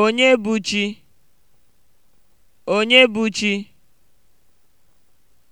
Onye bụ chi? Onye bụ chi?